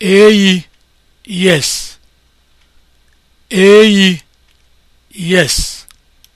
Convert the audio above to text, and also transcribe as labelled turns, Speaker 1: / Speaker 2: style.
Speaker 1: eyi yes eyi yes